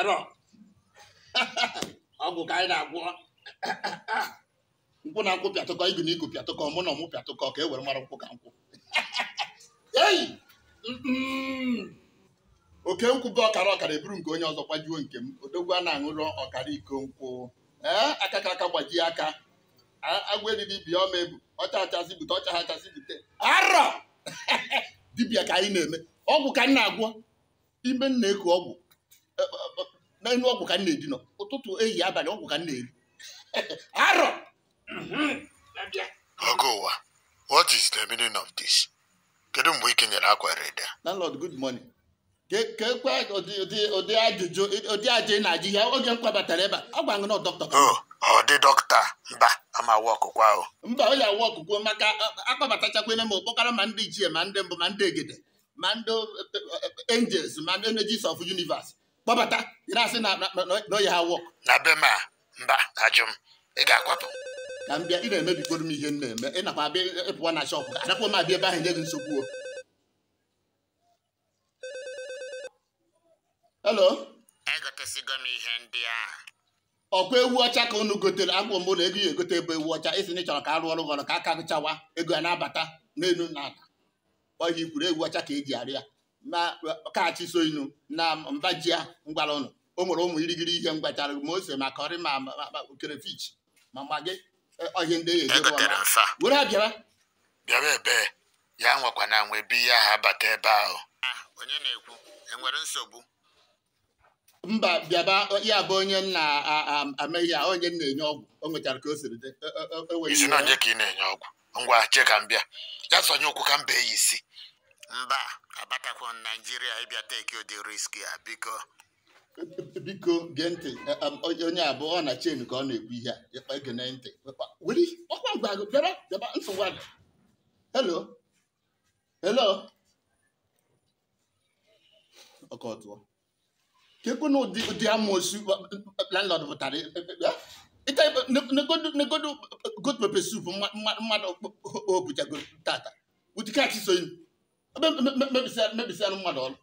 arọ ọgwụ ka anyị na-agwọ nkwụ na nkwụ pịatụkọ igu na igu pịatụkọ mụ na ọmụ pịatụkọ ka e were mara nkwụ ka nkwụ eyi oke nkwụ bụ ọkara ọkara eburu nke onye ọzọ gbajuo nke m odogwu a na-aṅụrụ ọkara iko nkwụ ee aka ka aka gbajie aka agwa eriri bịa ọma ebu ọcha achasị bute ọcha achasị bute arọ dibịa ka anyị na-eme ọgwụ ka m na-agwọ ime m na ọgwụ na enu ọgwụ ka m na-edinọ ụtụtụ ehihie abalị ọgwụ ka m na-eri arọ ọgụ mhm. ụwa what is the meaning of this kedu mgbe ị kenyere akwa reda landlord good morning ka ekwe ụdị ajụjụ ụdị ajụ ị na-ajụ ihe oge m kwabatara ebe a gwa ngụ na dọkịta oh, ọ dị dọkịta mba ama awa ọkụkọ ahụ mba ọ ya awa ọkụkọ maka akpabatachakwene m okpokara ma ndị ichie ma ndị mbụ ma ndị egede ma ndị eh, eh, angels ma ndị energies of universe kpọbata ị na-asị na oyi ha wọk na be ma mba ajụm ị ga-akwapụ na mbịa ị na-emebikoro m ihe m na-eme ị nakwa abịa ịpụwa na shọpụ adakwa m abịa ebe ahụ nye gị nsogbu o helo egotesigo m ihe ndị ahụ ọkwa ewu ọcha ka unu gotere akwụ m ụlọ ego ya egote ebe ewu ọcha isi na ịchọrọ ka arụ ọrụ gọrọ ka aka gụchawa ego ya na-abata n'elu na ata ọ ihe ikwuru ewu ọcha ka eji arịa na kachi so na mba ji ngwara ụnụ o nwere ụmụ irigiri ihe ngwachara ma ose ma kọrị ma kerefich ma magị e, ọhịa ndị ya e ejebe were abịara bịara ebe e. ya nwekwa na nwe bi ya ha bata ebe ahụ onye na-ekwu enwere nsogbu mba bịaba ya bụ onye na-ameghị ya onye na-enye ọgwụ o nwechara ka o siri dị isi na onye ka ị na-enye ọgwụ ngwa che ka m bịa ya sonye ụkwụ ka m bee ya isi mba abatakwo naijiria ịbịa teki ụdị riski a biko biko gee ntị onye abụọ ọ na chen ka ọ na-ekwu ihe a gee ntị ọkọtụọ na ụdị amoosu landlord pụtara negodo good pepper soup mmadụ o tata ụdị kachi mebisịa mmadụ ọrụ